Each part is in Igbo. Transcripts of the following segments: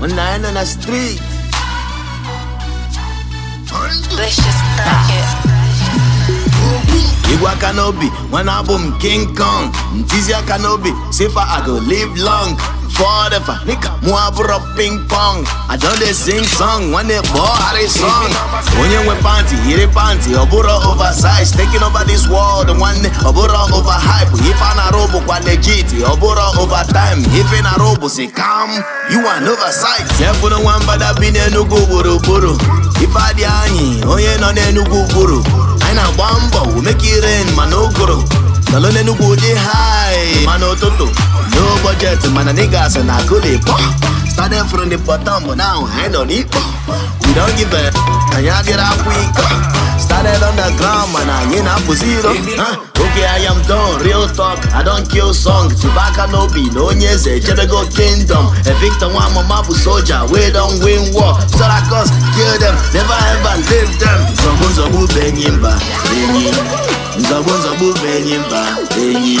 when I ain't on the street. Let's just crack it. Igwe n'obi, King Kong, ntizi aka n'obi, I go live long. forever. Nigga, muabro ping pong. I don't they sing song when they ball how song. When you went panty, hit it panty. Obura oversized, taking over this world. The one day Obura overhype. If an arobo quality, Obura overtime. If an arobo say come, you an one but I've been a nugu buru buru. If I di oh yeah, no nugu buru. I na bambo, make it rain, chest mana niggas and I could it Started from the bottom but now I on need We don't give a and y'all get up weak Started on the ground man I ain't up zero huh? Okay I am done, real talk I don't kill song Chewbacca no be no nyeze eh, Chebego kingdom Evictor one mama bu soldier We don't win war Sarakos kill them Never ever leave them Zobu zobu benyimba Benyi Zobu zobu benyimba Benyi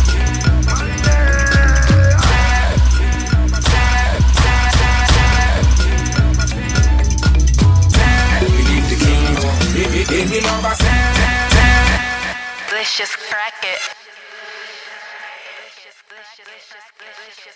delicious it.